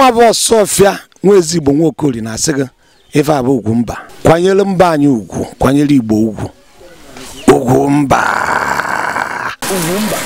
nwa bụ ọfịa nwa ezigbo nwa okori na-asị gị ife abụ ugwu mba kwanyere mba anyị ugwu kwanyere igbo ugwu ugwu mba ugwu mba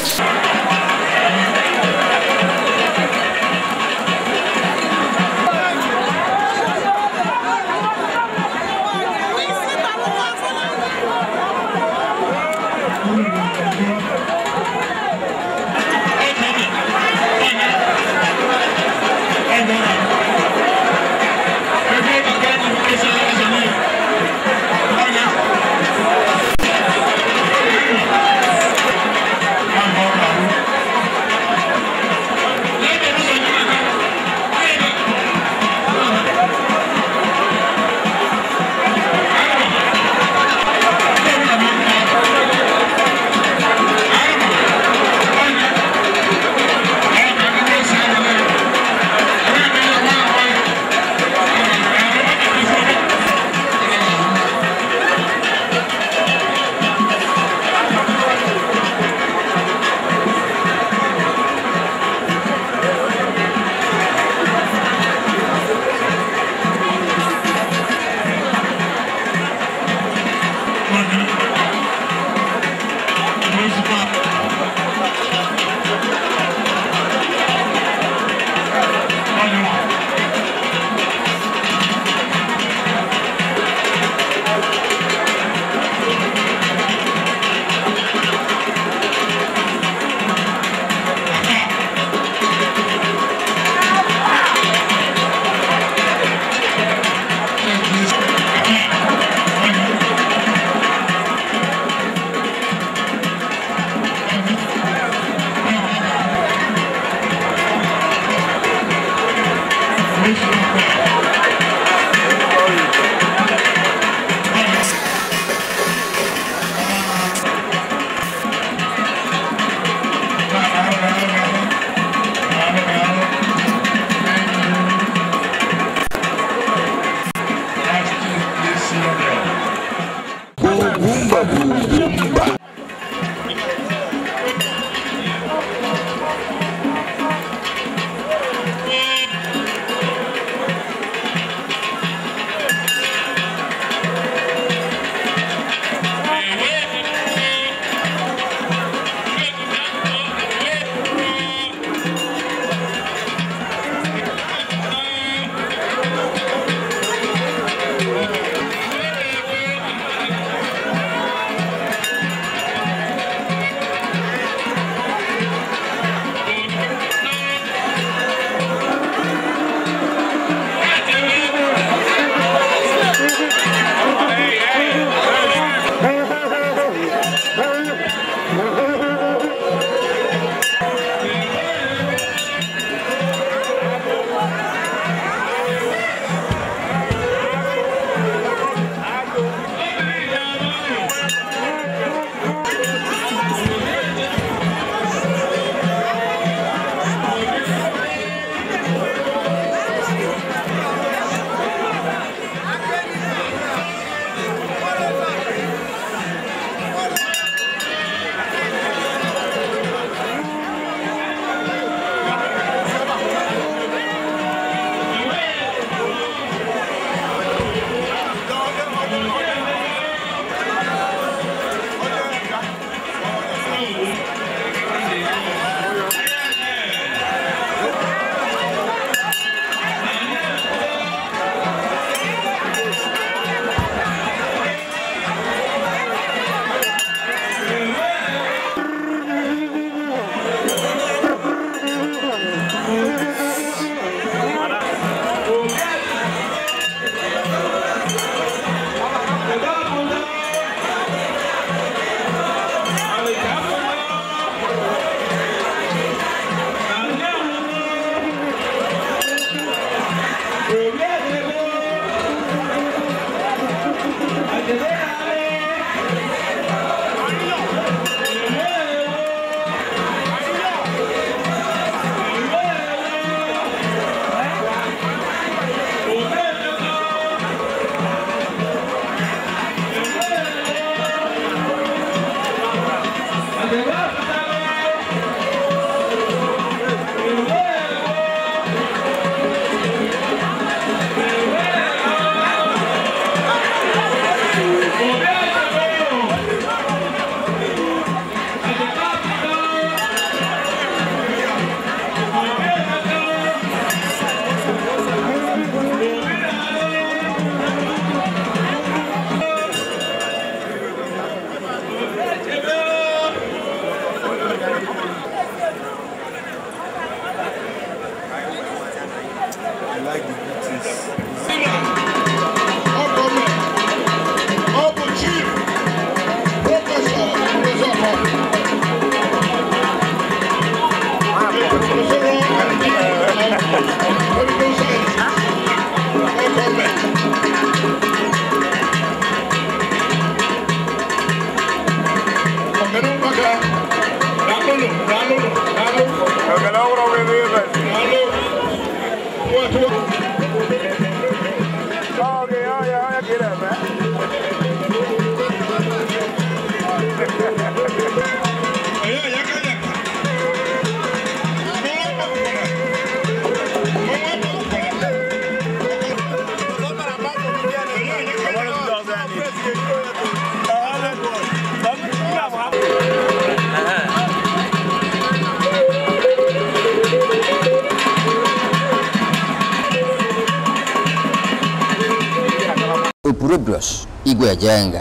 kujenga.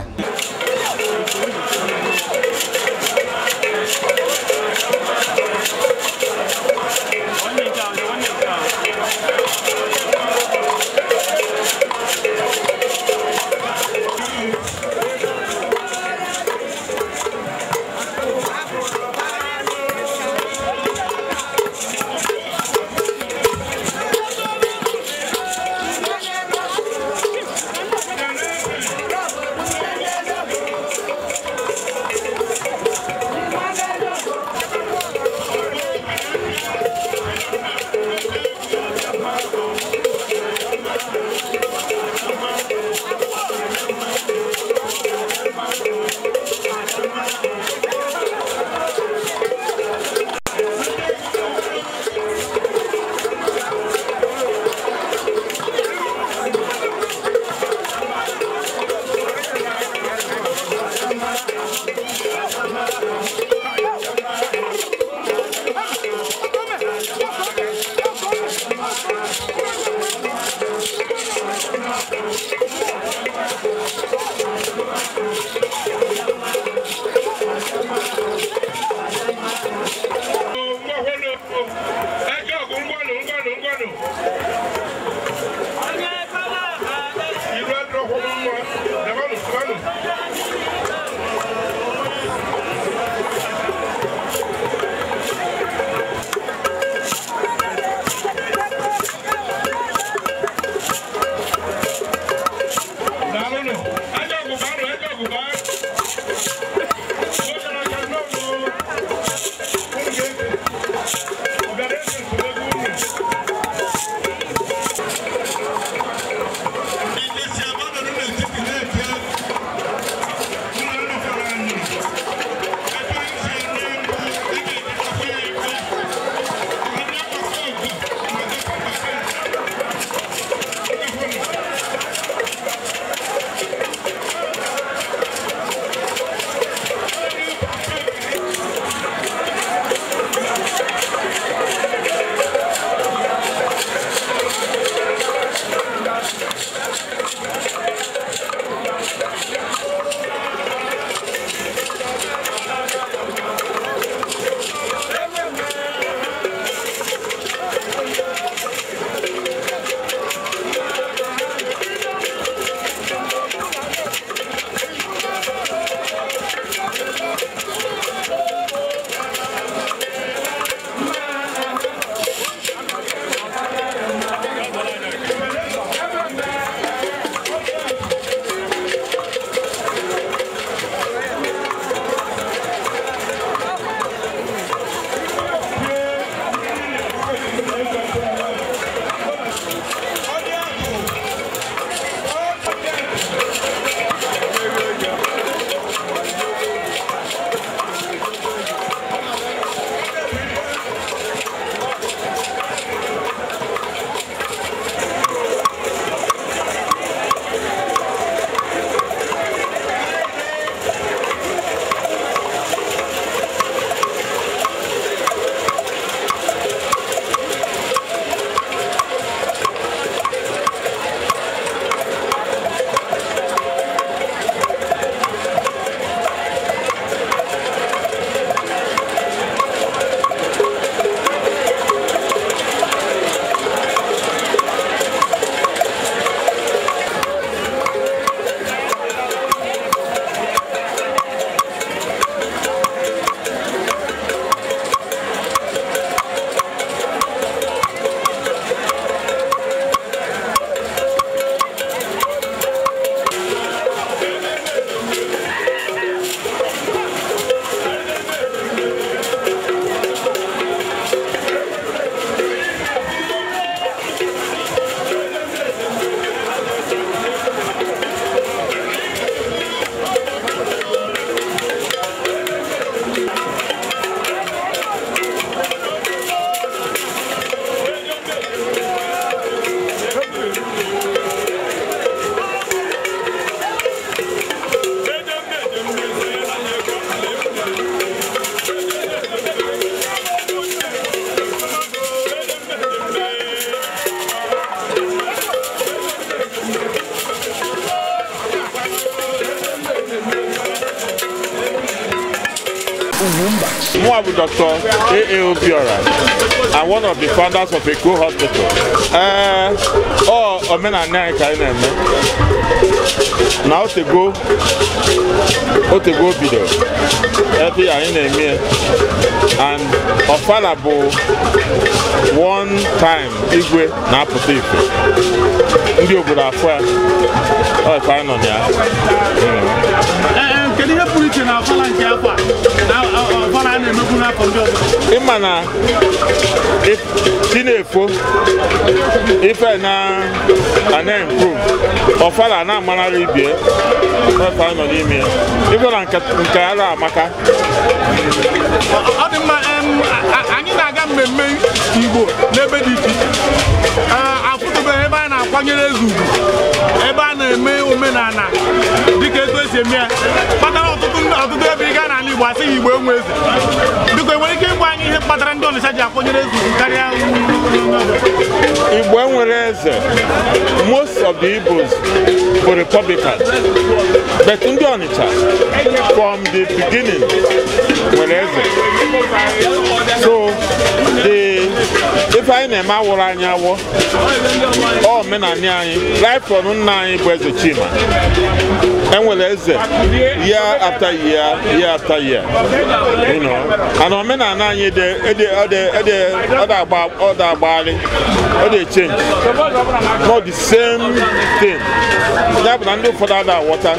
Dr. A.A.O. Biora. I'm one of the founders of Eco Hospital. Uh, oh, omenala anyị ka anyị na-eme na otego otego bido ebe anyị na-eme and ọfala bụ one time igwe na-apụta ife ndị obodo afọ ya ọ ka anyị nọ na ya hmm. nke na ọfala nke akwa na ọfala a na-emebu n'afọ ndị ọzọ ịma na chi na-efo ife na na ọfala na-amanara ibie ọfala nọ n'ime ya ife na nke ara amaka ọ dị mma anyị na-aga mmemme igbo n'ebe dị iche iche akwanyere ezu ugwu ebe a na-eme omenala dịka etu esi eme ya kpatara ọtụtụ ebe ị gaa n'ala Igbo asị gị Igbo enwe eze biko enwere ike ịgwa anyị ihe kpatara ndị Ọnịcha ji akwanyere ezu ugwu karịa Igbo enwere eze most of the Igbos bụ Republican but ndị Ọnịcha from the beginning nwere eze so the ife anyị na-eme awụrụ anyị awọ omenani anyị raifọn nna anyị bụ eze Chima enwere eze year after year year after year you know and omenala anyị ọ da ọ dị change not the same thing ya bụ na ndị ụfọdụ ada aghọta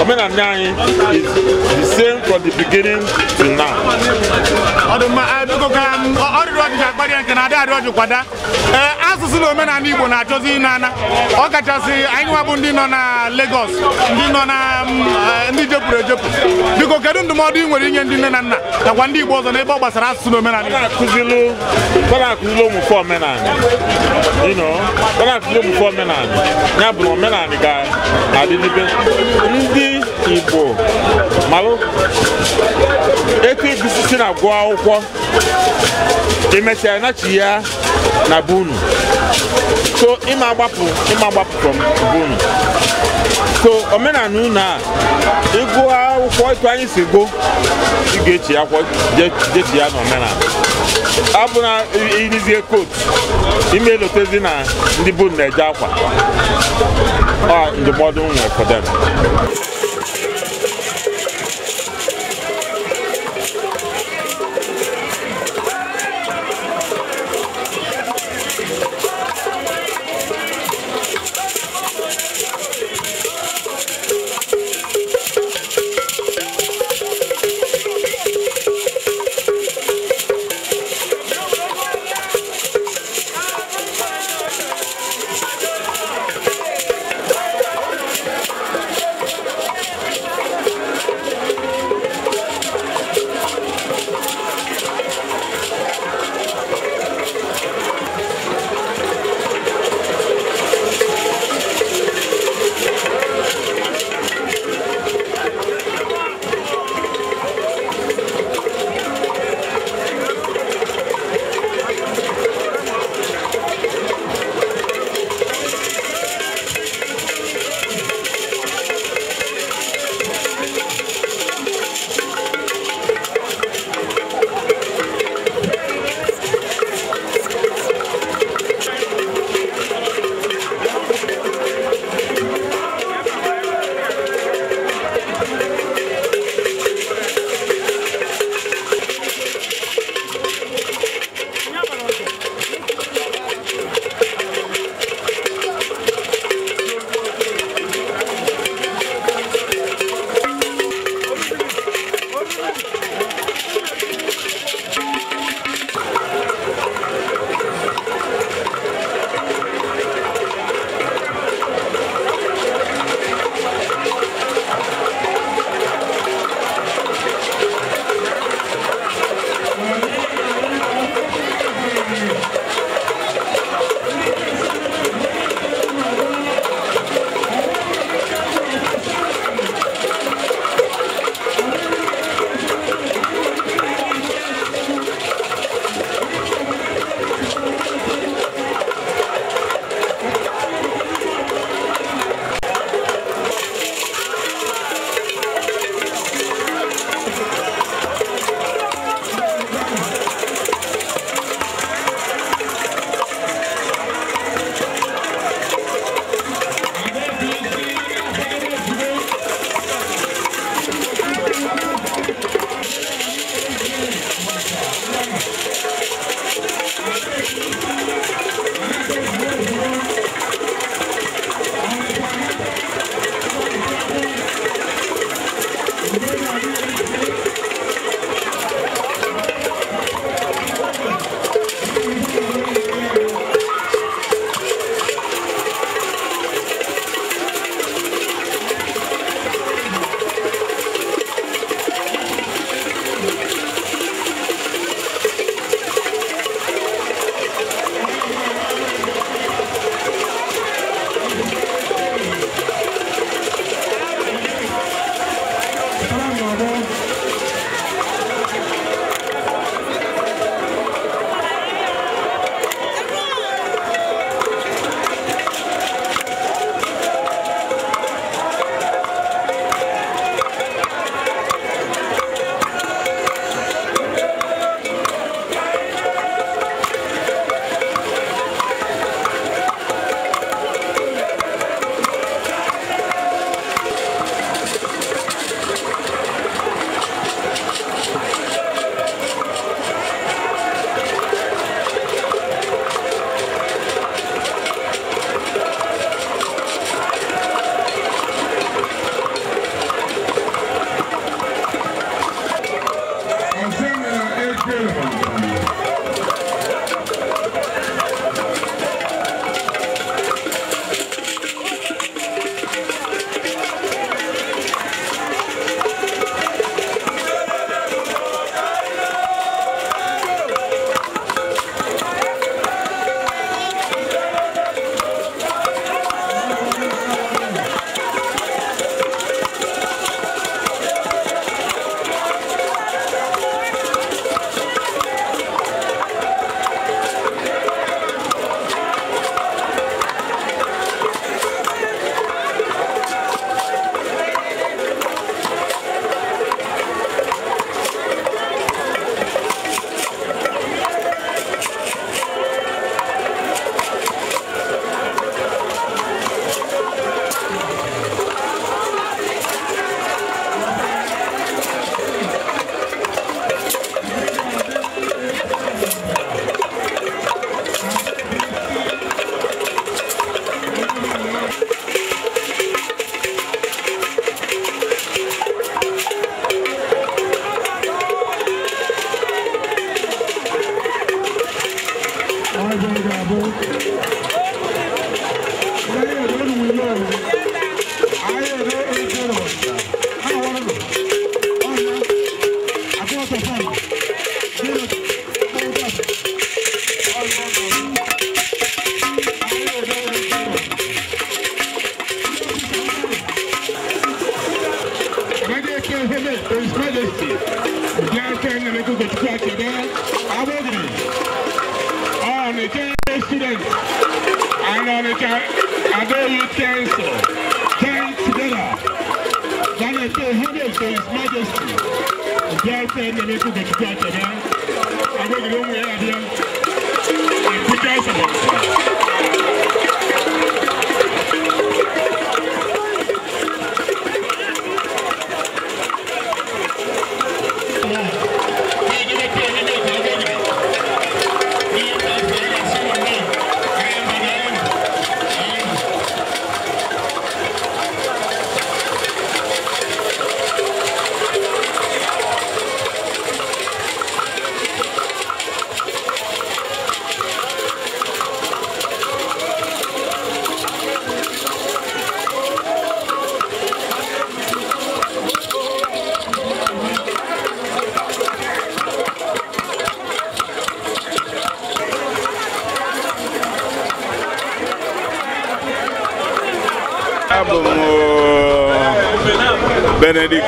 omenala anyị is the same from the beginning to now. nke ji kwada ee asụsụ na omenala igbo na-achọzi ịnana ọ kachasị anyị nwa bụ ndị nọ na Lagos ndị nọ na mm, e, ndị jepụrụ ejepụ biko kedu ndụmọdụ ị nwere inye ndị nne na nna nakwa ndị igbo ọzọ n'ebe ọ gbasara asụsụ na omenala igbo omenala ya bụ omenala ga na-adị n'ibe ndị igbo malụ etu egusi si na gụọ akwụkwọ emesịa nachi ya na bunu so ịma agbapụ ịma agbapụ from bunu so omenala unu a ịgụ akwụkwọ etu anyị si gụ ị ga-echi akwụkwọ jechi ya na omenala abụ na irizie kotu ime elotezi na ndị bunu na-eje akwa ndụmọdụ m nwere fọdụ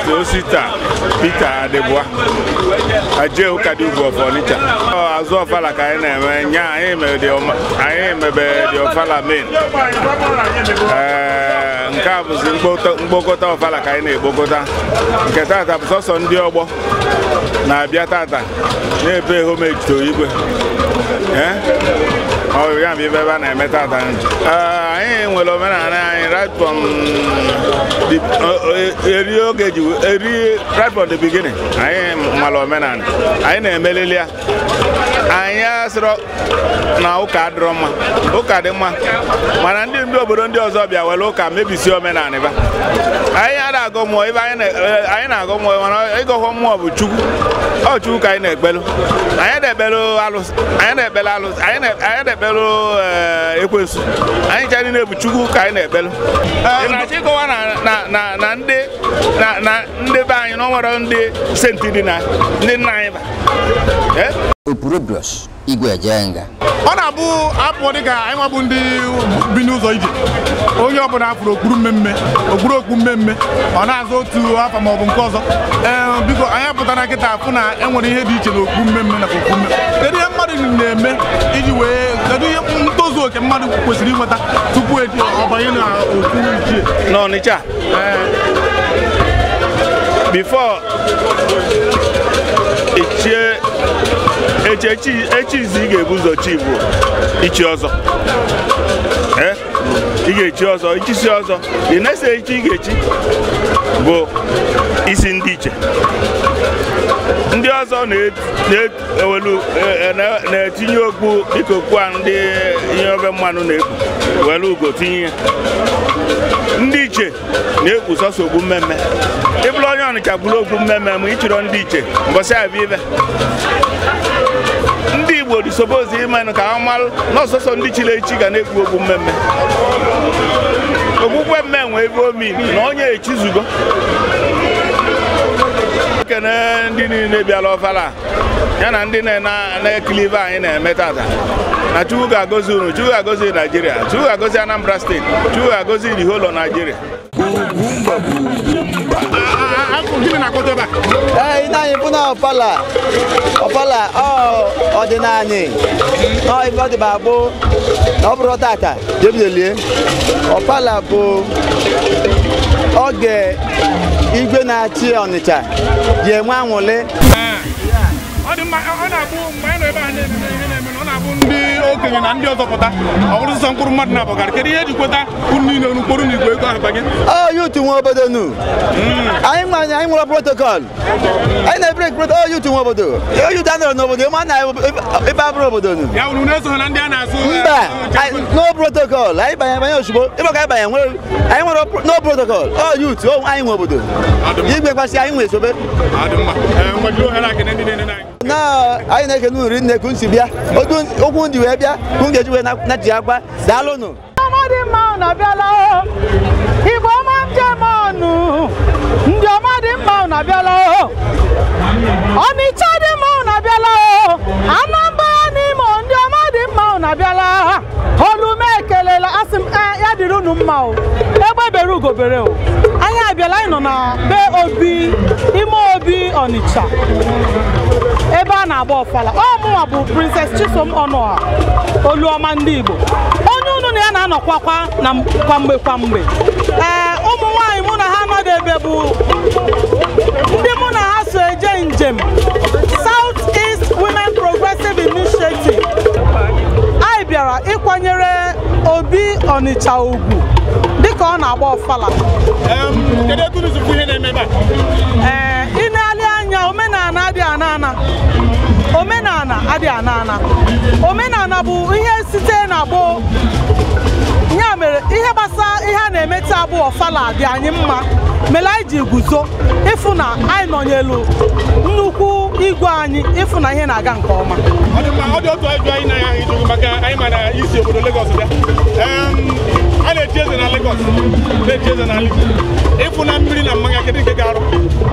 the Osita Peter Adebua aje ụka dị ugwu of Onitsha azụ ọfala ka anyị na-eme oh, nya anyị mebe dị ọfala main eh, nke a bụzi mkpokọta ọfala ka anyị na-ekpokọta nke tata bụ sọsọ ndị ọgbọ na-abịa tata na-ebe homage to igwe eh? ọ ya bụ ibe ebe a na-emeta ada anyị nwere omenala anyị right from e, eri oge ji eri right from the beginning anyị nwere omenala anyị na-emelili ya anyị asịrọ na ụka adịrọ mma ụka dị mma mana ndị ndị obodo ndị ọzọ bịa were ụka mebisi omenala ba anyị ada agụ mmụọ ebe e, anyị na-agụ mmụọ mana ịgụghọ mmụọ bụ chukwu ọ chukwu ka anyị na-ekpelu anyị na-ekpelu alụsị anyị na-ekpele alụsị anyị na-ekpele na-ekpelụ eh, anyị ji anyị na-ebu chukwu ka anyị na-ekpelụ na-achọ ịkọwa na ndị be anyị na ọ nwere ndị senti dị na ndị nna anyị ba eh? ọ na-abụ apụ dịka anyị nwabụ ndị bi n'ụzọ ije onye ọbụla apụrụ okpuru mmemme okpuru okpu mmemme ọ na-azụ otu afọ maọbụ nke ọzọ eh, biko anyị apụtara nkịta afụ na enwere ihe dị iche okpu mmemme ihe mmadụ na-eme kedu ihe ntozu oke mmadụ kwesịrị inweta tupu ọ banye na otu ichie n'Ọnịcha eh. before ichie echi izi ị ga-ebu ụzọ chi bụ ichi ọzọ ị ga-echi ọzọ ichisi ọzọ ị na-ese echi ị ga-echi bụ isi ndị iche ndị ọzọ e, e, na-etinye okpu dịka okpu a ndị ihe obe mmanụ na-ekpu were ugo tinye ya ndị iche na-ekpu sọsọ ogbu mmemme ịbụrụ onye ọnịcha bụrụ ogbu mmemme ma ị ndị iche mbọsị abịa ibe ndị Igbo dị disobozi ịmanụ ka ha malụ n'ọsọsọ ndị chiri echi ga na ekwu okwu mmemme okpukpe mme nwe ebe omi na onye echizugo na-ekene ndị niile bịara ọfala ya na ndị na-ekili ibe anyị na-eme tata na Chukwu ga-agọzi unu Chukwu ga-agọzi Naijiria Chukwu ga-agọzi Anambra steeti Chukwu ga-agọzi the whole of Nigeria ee ine anyị bụ na ọpala ọpala ọdịnala ọ ibe ọ dị ma bụ na ọ bụrụ tata jebidelie ọpala bụ oge igwe na-achị ọnịcha ji enwe anwụlị ọ na-abụ mgbe anyị nọ ebe a bụ ndị okenye na ndị ọzọ pụta ọ mkpụrụ mmadụ na-abọgara kedu ihe eji kweta niile kpọrọ na igwe ego arụba gị yutu nwe obodo nu anyị nwe anyị nwere protokọl anyị na-ebere protokọl yutu obodo yutu anọrọ n'obodo ma na ebe abụrụ obodo nu ya na-eso na ndị a na mba no protokọl anyị banye banye ozugbo ịbụ ka anyị banye nwere anyị nwere no protokọl yutu anyị nwe obodo igwe kwasị anyị nwe esobe na anyị na-ekene uri nne kun si bịa okwu ndị wee bịa kun ga-eji wee na-eji agwa daalụnụ dị mma unu abịala igbo ọma njem ọnụ ndị ọma dị mma unu abịala ọnịcha dị mma unu abịala anambra n'ime ndị ọma dị mma unu abịala olume ekelela asị m ya dịrị unu mma o egbe bere ugobere o anyị abịala anyị nọ na be obi ime obi ọnịcha ebe a na-agba ọfala ọ mụnwa bụ Princess Chisom Ọnụa Oluọma ndị Igbo onye unu na ya na-anọkwakwa na kwamgbe kwamgbe ee ụmụ nwaanyị mụ na ha anọghị ebe bụ ndị mụ na ha so eje njem South East Women Progressive Initiative anyị bịara ịkwanyere Obi Ọnịcha ugwu dịka ọ na-agba ọfala ee adịghị ana ana omenala ana bụ ihe site na gboo ya mere ihe gbasara ihe a na-eme taa bụ ọfala dị anyị mma mere anyị ji guzo ịfụ na anyị nọnyelu nnukwu igwe anyị ịfụ na ihe na-aga nke ọma ọ dị otu ajụ anyị na maka anyị ma na isi obodo Lagos dị.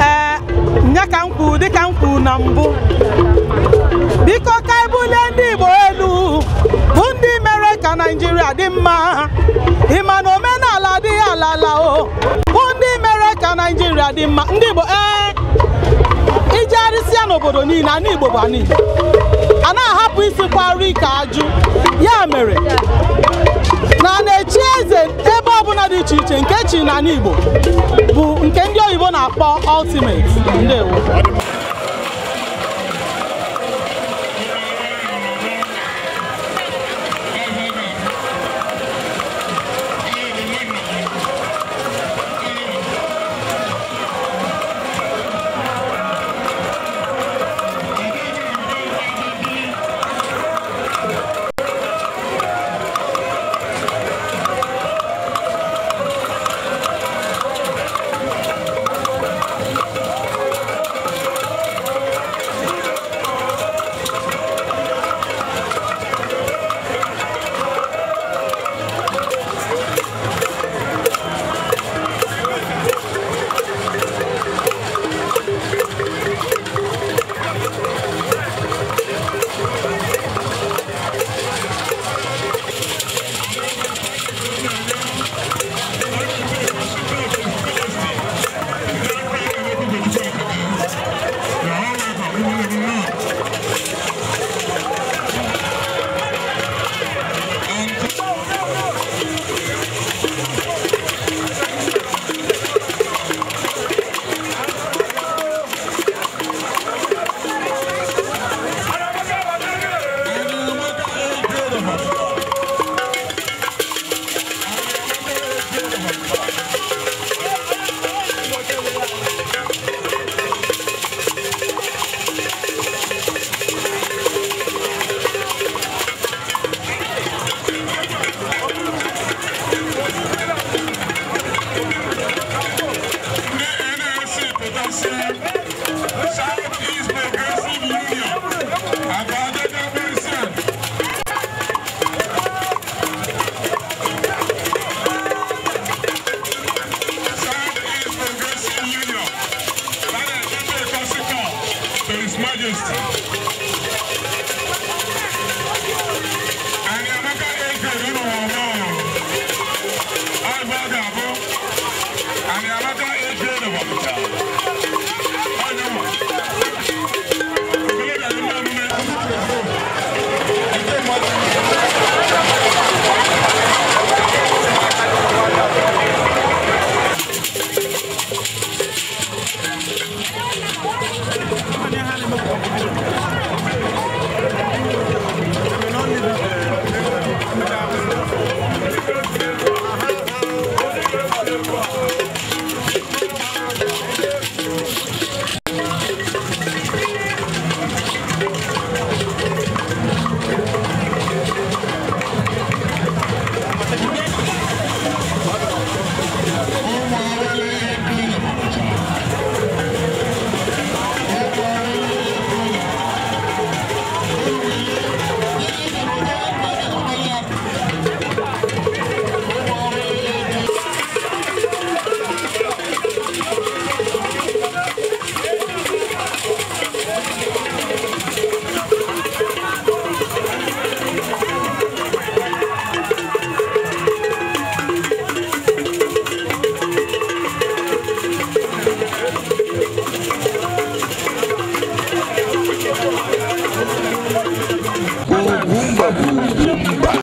a ee nya ka m kwuru dịka m kwuru na mbụ biko ka ebulie ndị Igbo elu bụ ndị mere ka Naijiria dị mma ịma na omenala adịghị ala o bụ ndị mere ka Naijiria dị mma ndị Igbo ee ya n'obodo niile ana Igbo bụ ana a na-ahapụ isi kwari ka ajụ ya mere na na-echi eze ọbụla dị iche iche nke chi n'ala Igbo bụ nke ndị oyibo na-akpọ ultimate ndewo